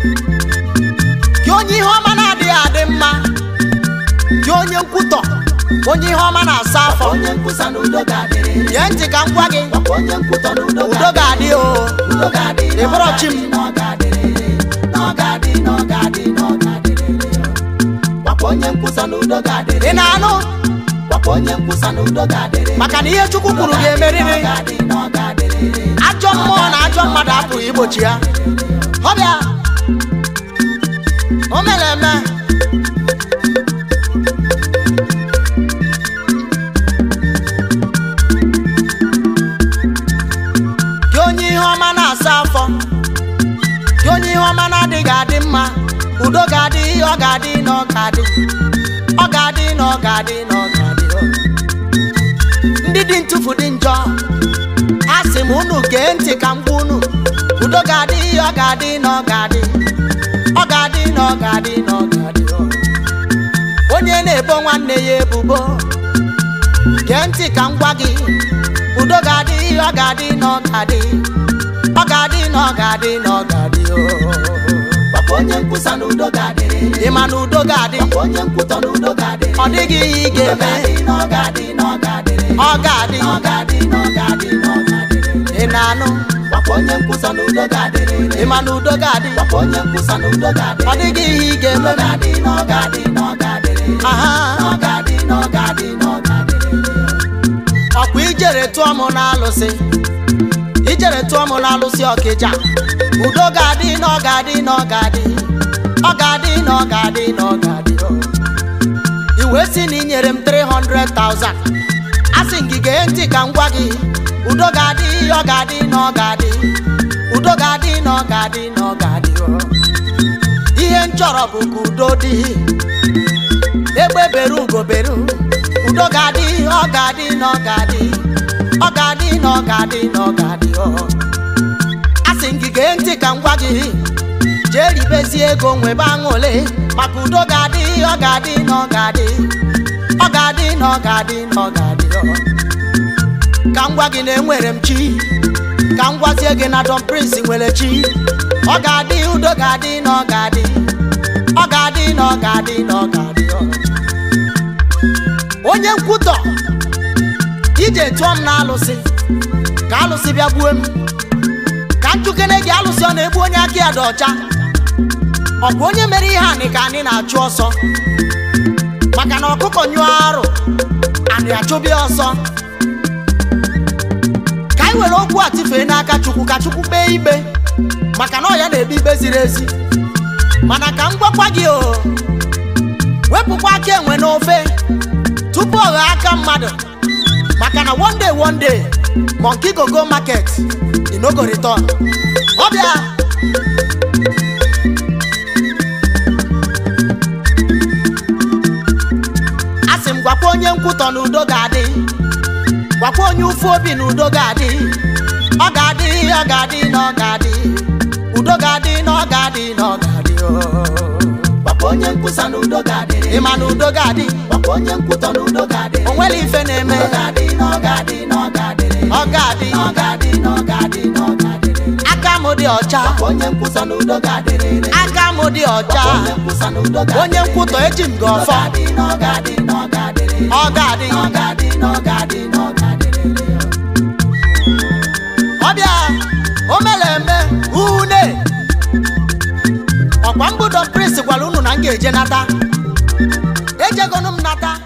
gị onye ihe ọma na-adịghị adị mma gị onye nkwutọ onye ihe ọma na-asa afọ nye ntị ka m gwa gị udo ga-adị o m ị na-anụ maka na ihe chukwu kwuru ga-emeriri ajọ mmụọ na ajọ mmadụ apụghị igbochi ya o mere eme gị onye ihe ọma na-asa afọ gị onye ihe ọma na-adịghị adị mma udo ga-adị ihe ọ ga-adị na ọ ga-adị ọ ga-adị na ọ ga-adị na ọ ga-adị ndị dị ntụfu dị njọ a sị m unu gee ntị ka m kwụ unu udo ga-adị ihe ọ ga-adị na ọ ga-adị ga-adị na onye na-ebo nwanne ya ebubo gee ntị ka m gwa gị udo ga-adị ọ ga-adị na ọ ga-adị ọ ga-adị na ọ ga-adị na ọ ga onye nkwusa na udo ga-adị ị ma ga-adị papa onye nkwutọ na udo ga-adị ọ dịghị ihe ị ga-eme ọ ga-adị ọ ga-adị ọ ga-adị ị na-anụ onye nkwusa na ịma na udo onye nkwusa na ọ dịghị ihe ị ga-eme ọ ga-adị aha ọkwa ijere tụọ m n'alụsị ijere tụọ m n'alụsị ọkịja udo ga-adị dị ọ ga-adị na iwe si na inyere m 300,000 ting gee ntị ka m gwa gị udo ga-adị ọ ga-adị na ọ ga-adị udo ga-adị na ọ ga-adị na ọ ga-adị ihe nchọrọ bụ ka udo dị egbe beru ugo beru udo ga-adị ọ ga-adị na ọ ga-adị ọ ga-adị na ọ ga-adị na ọ ga-adị a gị gee ntị ka m gwa gị jee ribezie ego nwebe aṅụle maka udo ga-adị ọ ga-adị na ọ ga-adị ọ ga-adị na ọ ga-adị na ọ ga-adị oh. ka m gwa gị na enwere m chi ka m gwazie gị na Don Prince nwere chi ọ ga-adị udo ga-adị na ọ ga-adị ọ ga-adị na ọ ga-adị na ọ ga-adị oh. onye nkwutọ ije tụọ m na alụsị ka alụsị bịa gbuo m ka njukene gị alụsị ọ na-egbu onye aka ya dị ọcha ọ bụ onye mere ihe anị ka anyị na-achụ ọsọ kọnyụọ arụ na achụbịa ọsọ ka anyị were okwu a n'aka chukwu ka chukwu kpee ikpe maka na ọ ya na-ebi ikpe ziri ezi mana ka m gwakwa gị o wepụkwa aka enwe n'ofe tupu ọ ghọọ aka mmadụ maka na one day one day monkey go go market inogoriton ọbịa onye nkwutọ n'udo ga-adị gwakwa onye ụfụ obi na udo ga-adị ọ ga-adị ọ ga-adị na ọ ga-adị udo ga-adị na ọ ga-adị na ọ ga-adị oh. gwakwa onye nkwusa n'udo ga-adị ịma n'udo ga-adị gwakwa onye nkwutọ n'udo ga-adị o nwere ife na-eme ọ ga-adị na ọ ga-adị na ọ ga-adị ọ na ọ ga-adị na ọ ga-adị na ọ ga-adị aka m dị ọcha onye nkwusa n'udo ga adị aka m dị ọcha onye nkwutọ eji m gị ọfọ ga-adị na ọ ga-adị na ọ ga-adị ọgadi ọgadi ọgadi ọgadi lele. ọbịa omeleme une ọkwa mbudo prins gwara unu na m ga-eje nata ejegonu m nata